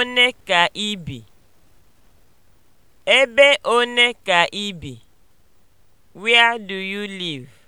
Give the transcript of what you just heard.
one ka ị bi? Ebe one ka ị bi? Where do you live?